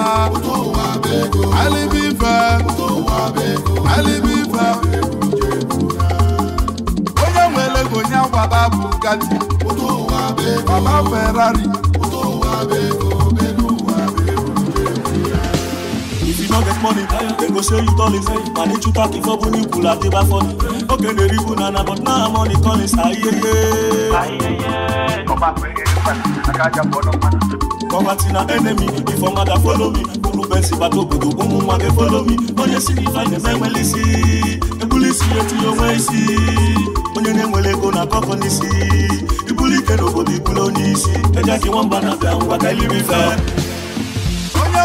Speaker 1: alibe ibe alibiba onye nwere ego onye agbada bụ gati baba ferrari if you no get money dem go show you dollars and each utak ifo bu ni kula ti ba fọni oge na eribu nana but now i'm on the collins ayeye. kọba tí na enemy if ọmọdà follow me onye si gbata obodo ụmụ onye si isi ebuli ya onwe isi onye na-enwere ego na akọkọ n'isi ibuli ike n'obodo ibulu onye na iliri onye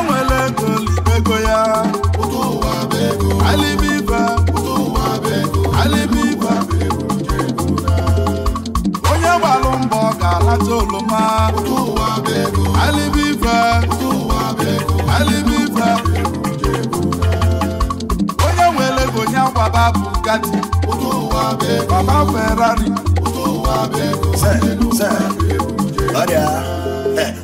Speaker 1: onye ga-alata wa Bugatti. Owó wa bẹ́ẹ̀. Bàbá Ferrari. Owó wa bẹ́ẹ̀. Sẹ́ẹ̀ sẹ́ẹ̀.
Speaker 2: Ọ̀dẹ̀ à.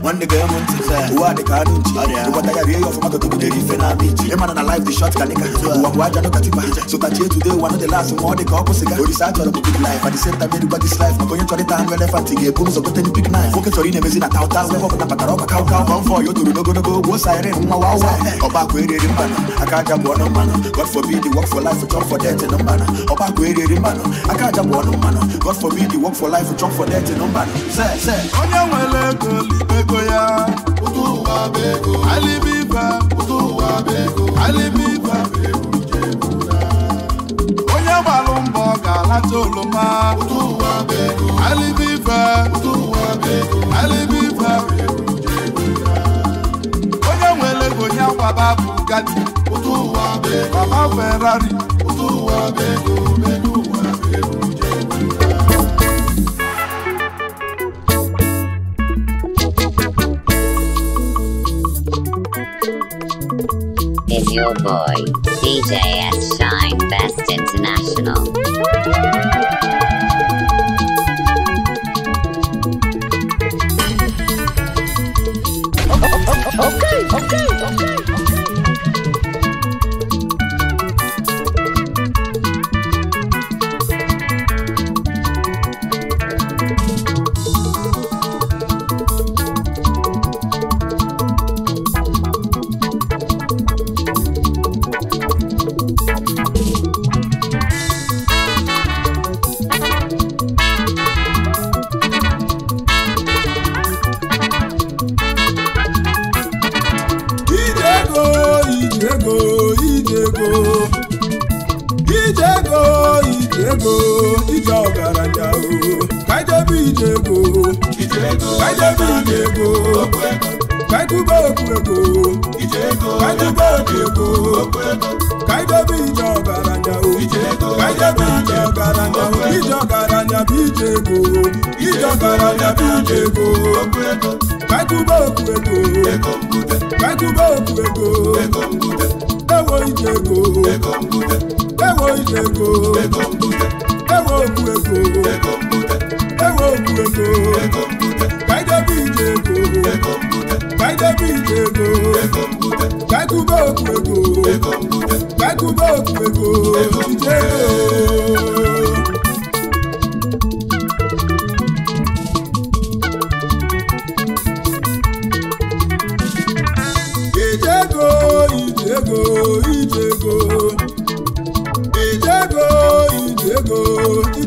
Speaker 2: nwanne ga enwe ntị ụwa dị ka anụ nchi ụgbọta ya rie ya ọfụma ka na ama iji na life dị short ka nika ụwa bụ aja n'ụka tipa sotachi etu ụwa dị last ma ọ dị ka ọ kwụsịga orisa achọrọ chọrọ bụ big life at the same time erigwa this life maka onye chọrọ ịta ga-ebu ụzọ gote big knife nwoke chọrọ ị na na tauta o toro nwa wa wa
Speaker 1: aka bụ god work for life for death aka aja bụ god work for life ego ya Alibiba, alibịba onye gbalụ mbọ ga-alata oloma alibịba alibịba onye nwere ego ya kwaba bụ gadi baba Ferrari
Speaker 2: your boy, DJ S. Shine Best International.
Speaker 4: okay, okay, okay.
Speaker 1: Ije ego kaidebe ile ego ego obi ego kaidebe ije ọgaranya o kaidebe ije ọgaranya o ije ọgaranya bụ ije ego ije ọgaranya bụ ije ego kaidube okwu ego okwu ego ewo ije ego ije ego ewe okwu ego ewe okwu ego kaidebe ije ego ije ego kaikuba okwu ego kaikuba ego ego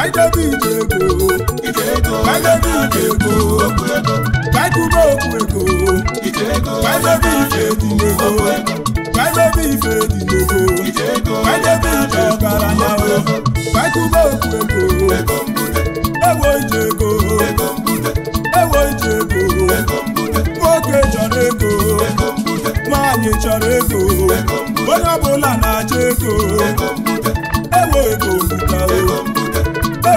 Speaker 1: Maịdebi ije ego Maịdebi ije ego Maịdube okwu ego Maịdebi ife dị n'ego Maịdebi ife dị n'ego Maịdebi ije ọbara ka Maịdube okwu ego Ewo ije ego Ewo ije ego Nwoke chọrọ ego Nwaanyị chọrọ ego Onye ọbụla na-achọ ego Ewo ego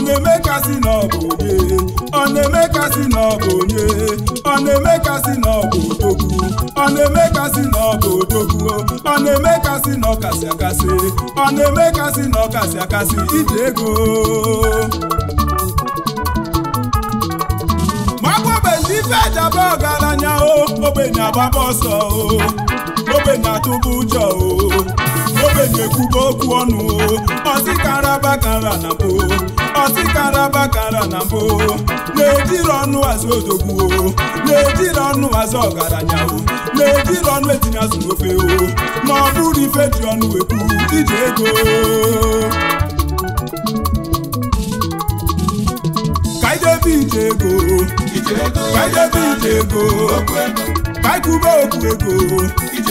Speaker 1: ọ na-eme kasị na ọ bụ onye ọ na-eme kasị na ọ bụ onye ọ na-eme kasị na ọ bụ odogwu ọ na-eme kasị na ọ bụ odogwu ọ na-eme kasị na ọkasị akasị ọ na-eme kasị na ọkasị akasị iji ego maọbụbezi ife ejaba ọgaranya o ogbenye agbaba ọsọ o ogbenye atụba ụjọ o ogbenye ekwuba okwu ọnụ o ọsị karaba kara na mbụ bakara na mbụ na-ejiri ọnụ azụ odogwu na-ejiri ọnụ azụ ọgaranya na-ejiri ọnụ etinye azụ n'ofe na ọ bụrụ ife ji ọnụ wepụ iji ego kaidebe ije ego kaidebe ije ego kaikube okwu ego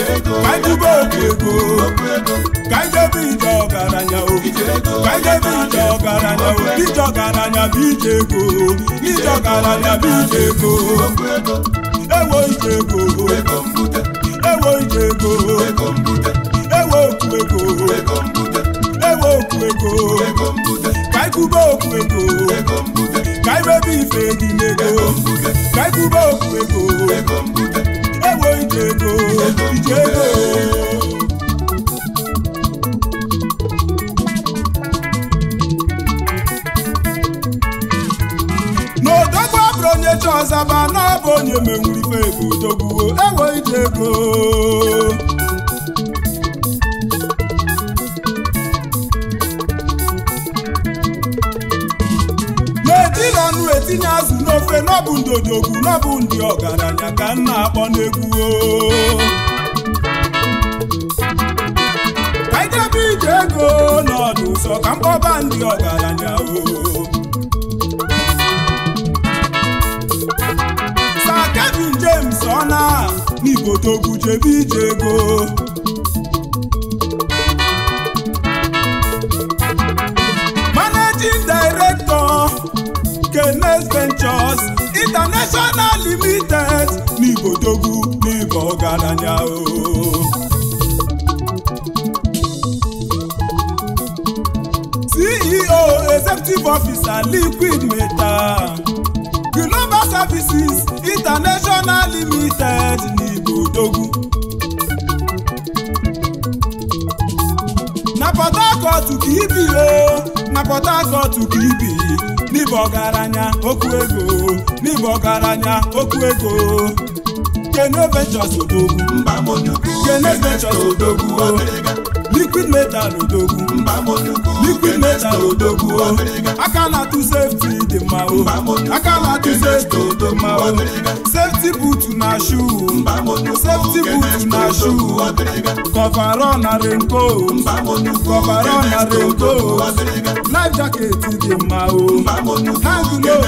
Speaker 1: ka ikube debe ego ka anyị debe ije ọgaranya o ka ije ọgaranya ije ọgaranya bụ ije ego ije ọgaranya bụ ije ego ewo ije ego ewo ije ego ewo okwu ego ewo ego ka ka ife ka Diego, Diego. N'odogwu abụrụ onye chọzaba na-abụ onye menwuru ife ego odogwu ewo Diego. na azụ n'ofe n'ọbụ ndodogwu n'ọbụ ndị ọgaranya ka m na-akpọ n'egwu ka ije ego n'ọdụ ụzọ ka mkpọba ndị ọgaranya o sa Kevin James ọ na n'Igbo jebe ije ego international limited ní ìbòjogún ní ìbọn o. ceo executive officer liquid metal global services international limited ní ìbòjogún. na port harcourt kìí bì o na port harcourt kìí bì. n'ibe ọgaranya okwu ego n'ibe ọgaranya okwu ego Kene Ventures odogwu Kene Ventures odogwu liquid metal odogun liquid metal odogun o oh. akala tu safety dey ma o akala tu safety dey ma o safety boot na shoe safety boot na shoe coverall na raincoat coverall na raincoat life jacket dey ma o hang low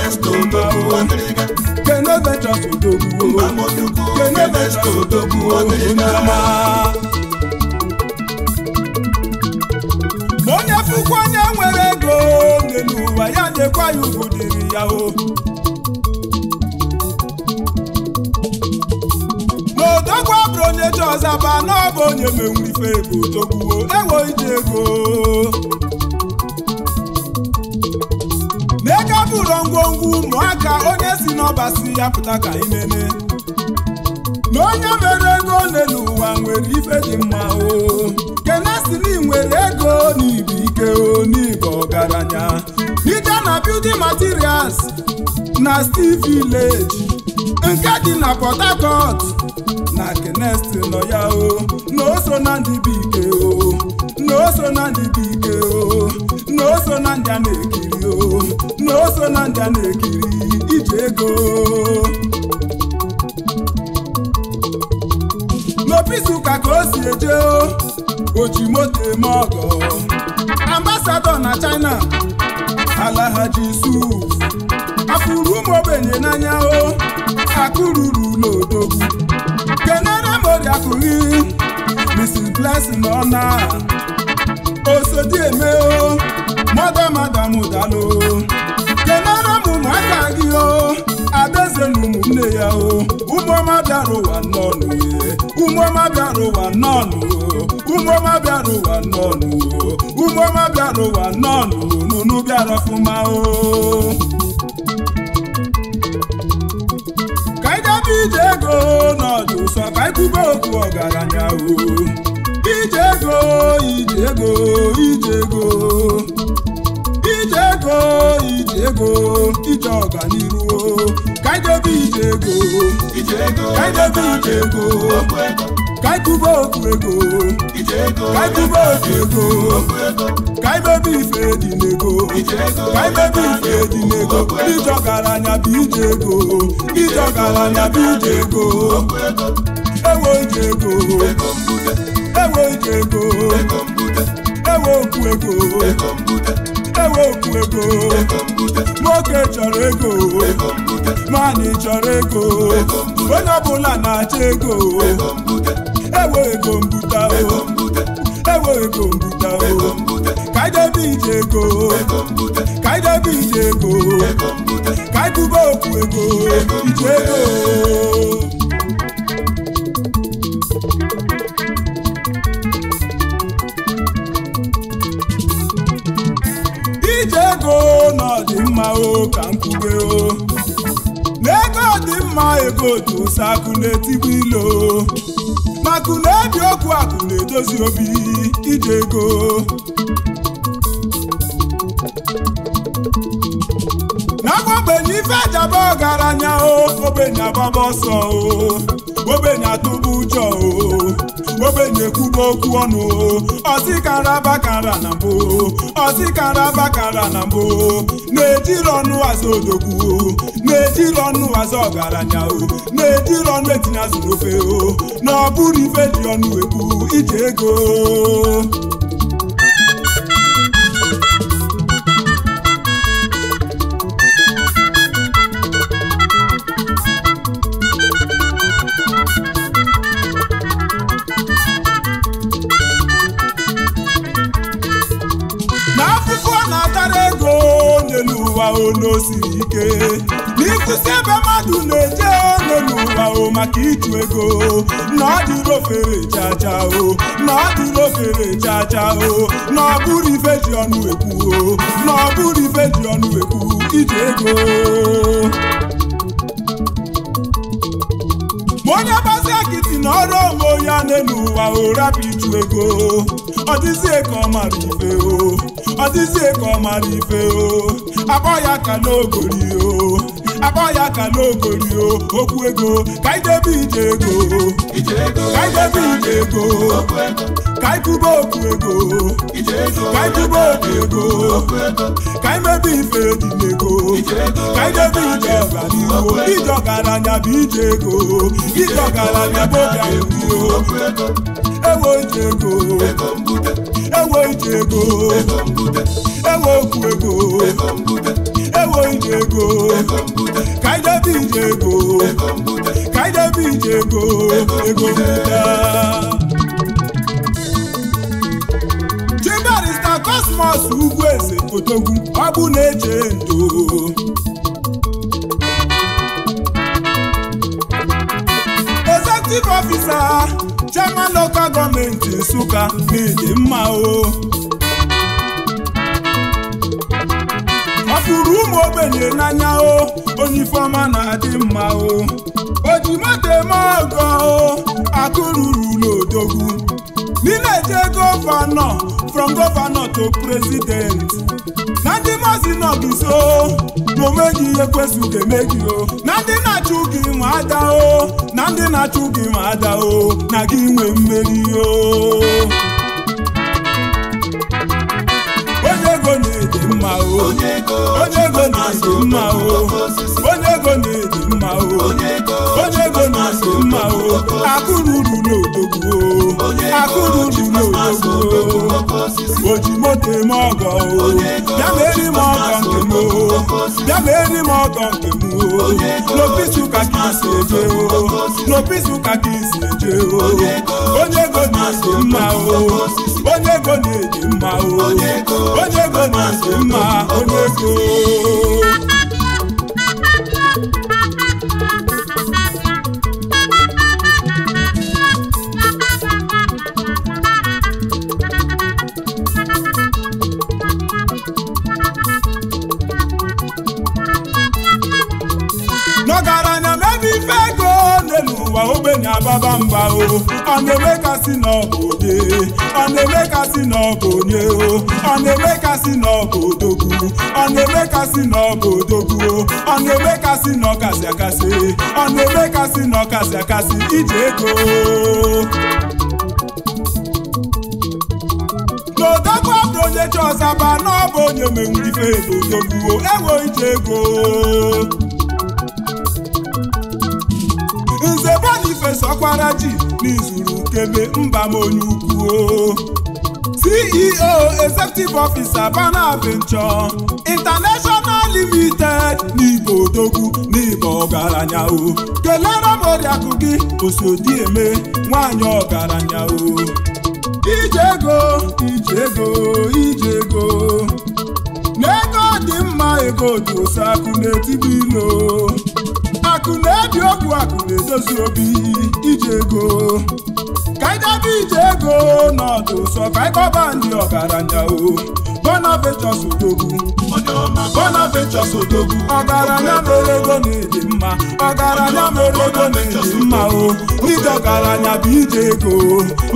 Speaker 1: dey ma o kene venture odogun o oh. kene venture odogun o oh. sekwa ya ugwu dịrị ya o n'odogwu abụrụ onye ji ọzaba na ọ bụ onye menwuru ife ebe ego. ewo iji ego n'ego bụrụ ngwongwo ụmụaka onye si n'ọbasi ya pụta ka imene na onye mere ego ole n'ụwa nwere ife dị mma o kenesi na nwere ego n'igbo ike onigbo ọgaranya dike na building materials na steel village nke dị na port harcourt na kenesti nọ ya o na o so na ndị bụ o na o so na ndị bụ o na o so na ndị a na-ekiri o na o so na ndị a na-ekiri iji ego n'opisi ụka ka o si eje o moto eme ọgọ ambasado na China alahaji Yusuf afụrụ ụmụ ogbenye n'anya o akụruru n'odogwu kenere moriakụghị Mr. Blessing ọ na eme o mada madam dalo kenere m ụmụaka gị o adaeze na ụmụnne ya o ụmụọma bịara ụwa nnọnụ ụmụọma bịara ụwa nnọnụ ụmụọma bịara ụwa nnọnụ ụmụọma bịara ụwa nnọnụ nunu bịara ọfụma o ka anyị gaba ije ego n'ọdụ ụsọ ka anyị okwu ọgaranya o ije ego ije ego ije ego ije ego ije ego ije ọganiru ka ije ego ka ije ego kaikuba otu ego kaikuba otu ego kaimebe ife dị n'ego kaimebe ife dị n'ego ije ọgaranya bụ ije ego ije ọgaranya bụ ije ego ewe ije ego ewe ije ego ewe okwu ego ewe okwu ego nwoke chọrọ ego nwaanyị chọrọ ego onye ọbụla na-achọ ego ewe ego mbute o ewe ego mbute o kaidebe ije ego kaidebe ije ego kaikuba okwu ego ije ego ka m kwube o n'ego dị mma ego sakule akụna etigbu ilo makụna ebi okwu akụna edozi obi ije ego n'agwa ogbenye ife ọgaranya o ogbenye agbaba ọsọ o ogbenye atụba ụjọ ogbenye ekwuba okwu ọnụ ọzikara bakara na mbụ ọzikara bakara na mbụ na-ejiri ọnụ azụ odogwu na-ejiri ọnụ azụ ọgaranya na-ejiri ọnụ etinye azụ n'ofe na ọ bụrụ ife ji ọnụ ekwu ije ego maka ịtụ ego na ọ dịrị o na ọ dịrị o na ọ bụrụ ife o na ọ bụrụ ife ji ego onye gbazi akịtị na ọrụ ya n'elu ụwa ụrapụ ịtụ ego ọ dịzie ka ọ mara ife o ọ dịzie ka ife o akpọ ya ka n'ogori o akọya ka n'ogori o okwu ego ka idebe ije ego ka idebe ije ego ka ikwube okwu ego ka ikwube okwu ego ka imebe ife edile ego ka idebe ije
Speaker 2: ọganihu
Speaker 1: ije ọgaranya bụ ije ego ije ọgaranya bụ oganihu ewo ije ego ewo ije ego ewo okwu ego Taiwo Ijego Kaide Ijego Kaide Ijego Ego Buda. Chi Barrister Cosmos Ugwueze Odogwu ọ bụ na-eche ndo Executive Officer Chairman Local Gọọmenti Nsụka na mma o ogbenye n'anya o onye ifeọma na-adị mma o oji moto eme ọgọ o akụ n'odogwu nileje gọvanọ from gọvanọ to president na ndị mazi nọgiso na onweghị ihe kwesịrị eme gị o na ndị na-achụ gị nwe ada o na ndị na-achụ gị nwe ada o na gị nwee mmeri o mma o onye ego na-adị mma o onye ego na-adị mma o onye ego na-adị mma o akụrụ uru n'odogwu o akụrụ uru n'odogwu o oji moto eme ọgọ o bịa na eri m ọgọ nke m o bịa na eri m ọgọ nke m o n'opisi ụka ka isi eje o n'opisi ụka ka isi eje o onye ego na-adị mma o onye go na-eji mma onye go na-eji mma onye go na-ababa mba o ọ na-eme kasị na ọ bụ na-eme kasị na ọ bụ o ọ na-eme kasị na ọ bụ na-eme kasị na ọ bụ o ọ na-eme kasị na ọ kasị akasị ọ na-eme kasị na ọ akasị iji ego n'odogwu abụ onye chọzaba na ọ onye menwuru ife ego odogwu o enwe ije ego ife sọkwara ji n'izuru kebe mba m onye ukwu CEO e Executive Officer Bana Venture International Limited n'ibo odogwu n'ibo ọgaranya o kelere m oriakụ gị eme nwaanyị ọgaranya o ije ego ije ego ije ego n'ego dị mma ego dị oseakụ n'etibi akụ na-edozi obi ije ego ka anyị ije ego n'ọdụ ụsọ ka anyị ndị ọgaranya o Bonifacius Odogwu Bonifacius Odogwu ọgaranya mere ego na-eji mma ọgaranya mere ego na-eji mma o ije ọgaranya bụ ije ego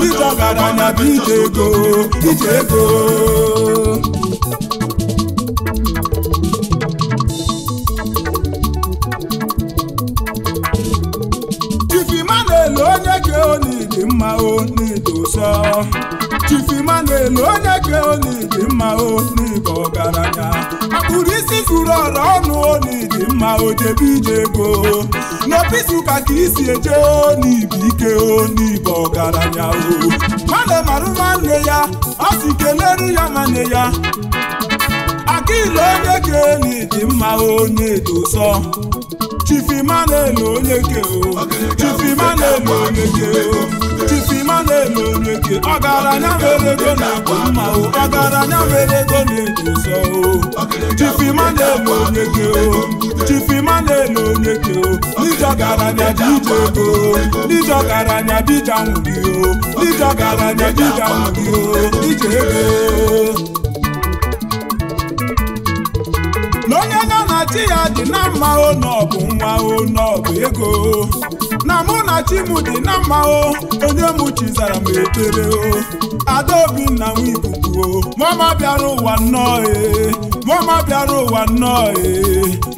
Speaker 1: ije ọgaranya bụ ije ego ije ego mma o n'Igbo sọ Chief Emmanuel onye ka mma o n'Igbo ọgaranya akpụrụ isi furu ọrụ ọnụ onidi mma o jebe ije ego n'obi Nsụka ka isi eje n'Igbo ike n'Igbo ọgaranya o mmadụ marụ nwanne ya ọ si keleru ya nwanne ya Akilu onye ka onidi mma onye chifima na Emmanuel onye ke o onye o uchusi ma na-eme onye ọgaranya mere ego na-akpọ mma o ọgaranya mere ego na-edosa o chifi ma na-eme onye gị o chifi ma na-eme onye gị o dija garanya dija ego dija garanya dija nwuri o dija garanya dija nwuri o dija ego n'onye na chi ya dị na mma o n'ọbụ nwa o n'ọbụ ego na mụ na chimu dị na mma o onye mụ zara m ekpere o adaobi na m ikuku o mama bịara ụwa nnọọ ee mama bịara ụwa nnọọ e.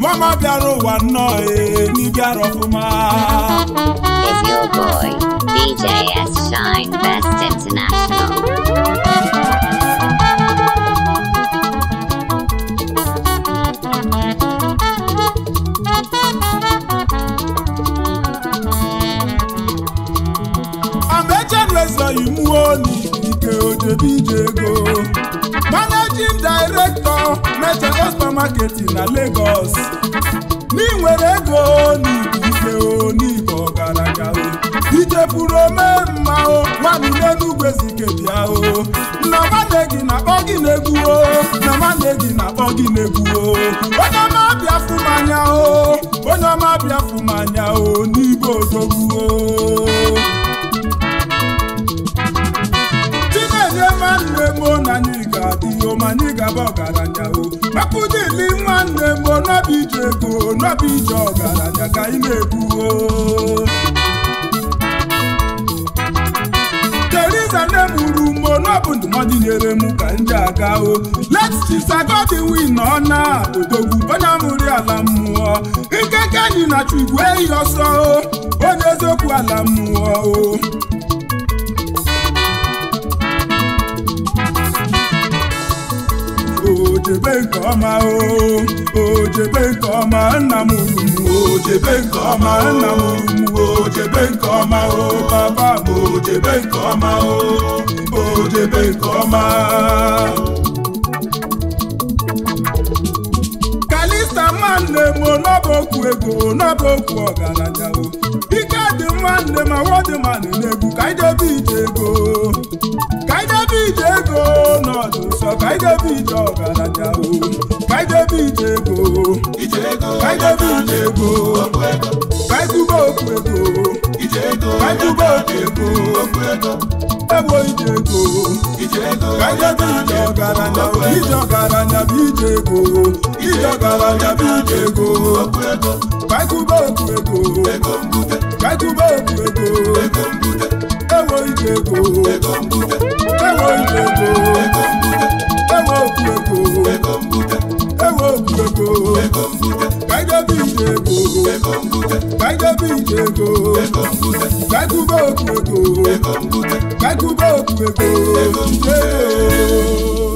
Speaker 1: mama bịara ụwa nnọọ e. n'ịbịara ọfụma
Speaker 2: is your boy DJ Shine Best International
Speaker 1: onye Ike ije ego Managing Director Meteor Supermarket na Lagos n'inwere ego n'igbo ife ije ọgaranya ichefuru omemma o nwaanyị n'enugwe zikebia o nna nwanne gị na-akpọ gị n'egwu o nna nwanne gị na-akpọ gị n'egwu o onye ọma bịa fụmanya o onye ọma bịa fụmanya o n'igbo odogwu o mo na anyị ga-adị oma anyị ga-aba ọgaranya o maka ụdịli nwanne mo n'ọbụ ije ego n'ọbụ ije ọgaranya ka anyị na-ebu o Teresa nne m uru mo n'ọbụ ndụmọdụ nyere m ka ndị ji aga o let's na ọ na odogwu onye amụrụ ala mmụọ nkeke anyị na chigwe eyi ọsọ o onye eziokwu ala mmụọ o ojebe nke ọma o ojebe nke ọma nna m urumu ojebe nke ọma nna m urumu ojebe nke ọma o baba ojebe nke ọma o ojebe nke ọma nwanne m n'ọbụ okwu ego n'ọbụ okwu ọgaranya o ike dị nwanne m awọdịman n'egwu ka anyị debe ije ego ka anyị debe ije ego n'ọdụ nsọ ka anyị debe ije ọgaranya o ka anyị debe ije ego ka anyị debe ije ego ka anyị okwu ego ka anyị okwu ego ebo ije ego ka anyị debe ije ọgaranya ije ọgaranya bụ ije ego ije ọgaranya bụ ije ego okwu ego okwu ego ego mbute okwu ego ego mbute ewo ije ego ego mbute ewo ije ego ego mbute ewo okwu ego ego mbute ewo okwu ego ego mbute ije ego ego ije ego ego okwu ego ego okwu ego ego